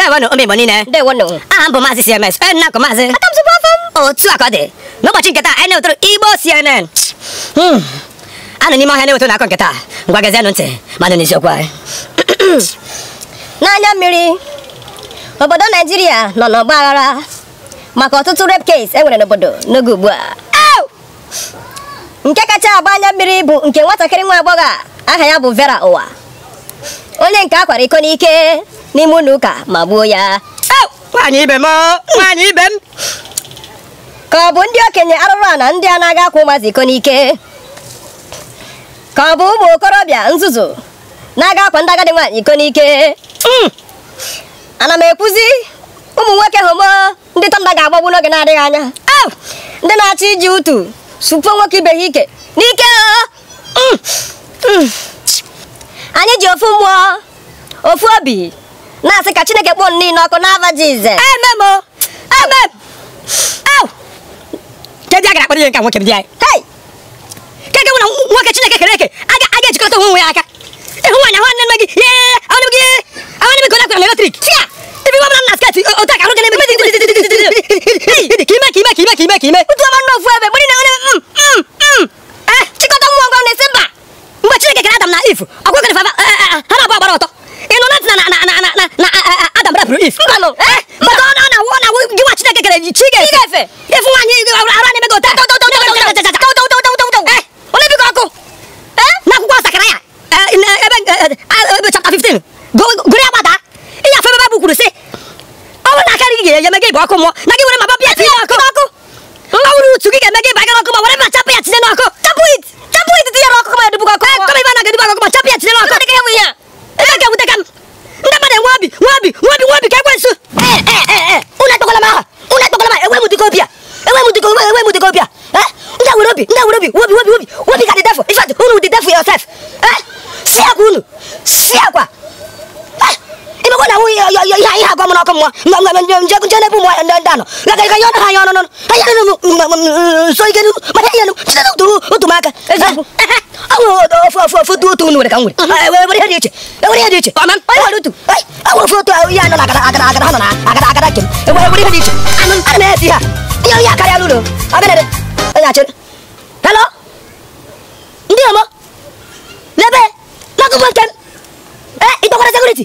ndewonu ụmụ Igbo niile ndewonu aha m bụ e maazị CMS onye na-akụ maazị otu a ka ọ dị n'ụbọchị nketa anyị e na-ewetara Igbo CNN hmm. anụ n'ime ọhịa na-ewetara na-akọ nketa ngwa gazienụ ntị manụ n'eziokwu anyị n'anya mmiri obodo Naijiria nọ n'ọgba aghara maka ọtụtụ rape case enwere n'obodo n'oge ugbu a nke kacha agba anya mmiri bụ nke nwatakịrị nwa agbọghọ aha ya bụ Vera Ụwa onye nke akwara iko n'ike n'ime ụlọ ụka ma gbuo ya nwaanyị ibe m ka ọ bụ ndị okenye arụrụ a na ndị a na-aga akwa ụmụazị iko n'ike ka ọ bụ ụmụ okorobịa nzuzu na-aga akwa ndị agadi nwaanyị iko n'ike hmm. ana m ekwuzi ụmụ nwoke homo ndị tanda ga-agbagbu n'oge na-adịghị anya ndị na-achọ iji utu supuo nwoke ibe ha ike n'ike hmm. Hmm. anyị ji ofu mmụọ ofu obi na-asị ka chineke kpọọ niile ọkụ n'afa jize ememo a gara akpara ihe nka nwoke dị anyị keke na nwoke chineke kere eke aga ejikọta onwe onwe aka ịhụ nwaanyị ahụ nne nne gị ye ahụ gị ahụ nne gị onye akwara na eletrik tia ibi nwa na otu ahụ gị na-eme ka mbalụ maka ọ na wụ na gịnwa chineke kere ji chi efe ịfụ nwaanyị ara na-emego onye biko ọkụ n'akwụkwọ ọsakara ya eh, eh, ebe chapta 15 gụrụ ya gbada ịnya afọ ebe bụ kwuru sị ọ bụrụ na akarị gị ga-enye gị bụ ọkụ mmụọ na gị were ma bapịa tinye ọkụ ọkụ ọ bụrụ utu gị ga-eme gị bagara ọkụ ma were ma chapụ ya tinye n'ọkụ chapụ it chapụ it tinyere ọkụ eh, ma edubukọ ọkụ kọma ibe na gị dubakọ ma chapụ ya tinye where, where would they go be? Eh? Nda will be, nda will be, will be, will be, will be, will be, will be, will be, will be, will be, will be, will be, will be, will wu ya ya ya so maka aman dia ya ya kare alu lebe na ku eh ito kora security